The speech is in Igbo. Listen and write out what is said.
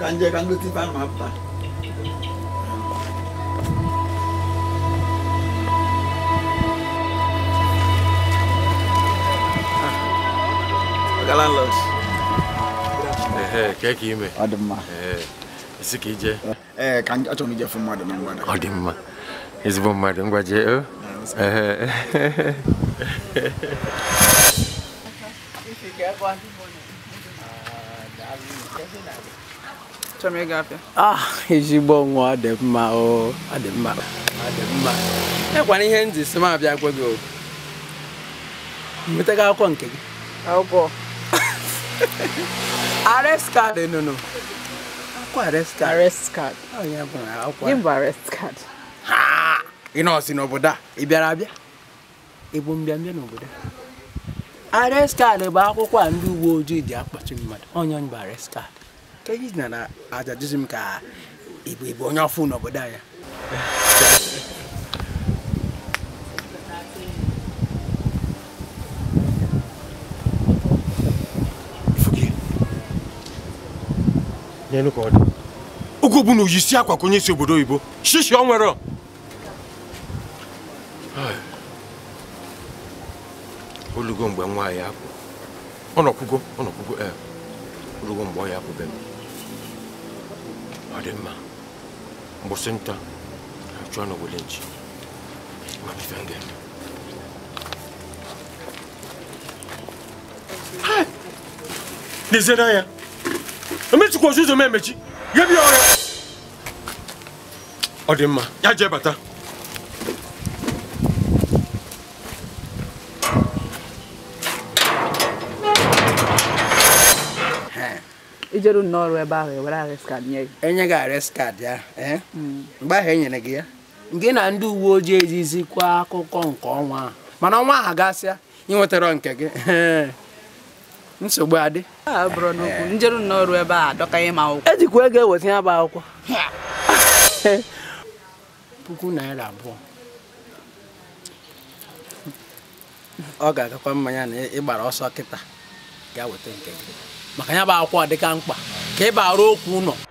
ganja kan lu tiba apa galan los eh kayak ki me mah? eh siki je eh kan ato mi je fun ma adema ngwa adema ezbo ma adema ngwa je eh If you get one, uh, I'll be chọrọ ịga afịa ah ezigbo nwa ọ mma ọ dị mma ọ mma ekwana ihe ndị si m abịa gwa gị nwetaga akwụkwọ nke gị akwụkwọ arrest nụnụ akwụkwọ akwụkwọ n'obodo a ị bịara abịa ịbụ n'obodo a bụ akwụkwọ a ndị uwe ojii ji akpọchi mmadụ onye bụ ka anyị na ajajụzi m ka ịbụ onye ọfụ n'obodo anyị oge bụ na oyisi akwa ka onye isi obodo oyibo shishi ọ nwere olugo mgbe nwaanyị apụ ọ nọkwugo ọ nọkwugo ee eh, olugo ọ ya ademma mbusinta chwana bulinji mamifengendo nizera ya emechikwa ozuzo m emechi ya bịa ọrịa ọ dị mma ya jee bata ijeru n'ọrụ ebe ahụ ewere arrest card nye gị enye gị arrest card ya eh? hmm. mgbe ahụ enyere gị ya nke na ndị uwe ojii ejizikwa akụkọ nke ọnwa ahụ mana ọnwa ahụ gasịa ị nwetara nke gị nsogbu adị njeru n'ọrụ ebe a adọkanye m akwụkwọ ejikwa ego eweta ya bụ akwụkwọ puku naira abụọ ọ ga-agakwa mmanya na ị gbara ọsọ kịta ga weta nke gị maka ya bụ akwụkwọ dịka mkpa ka ịba arụ okwu nọ.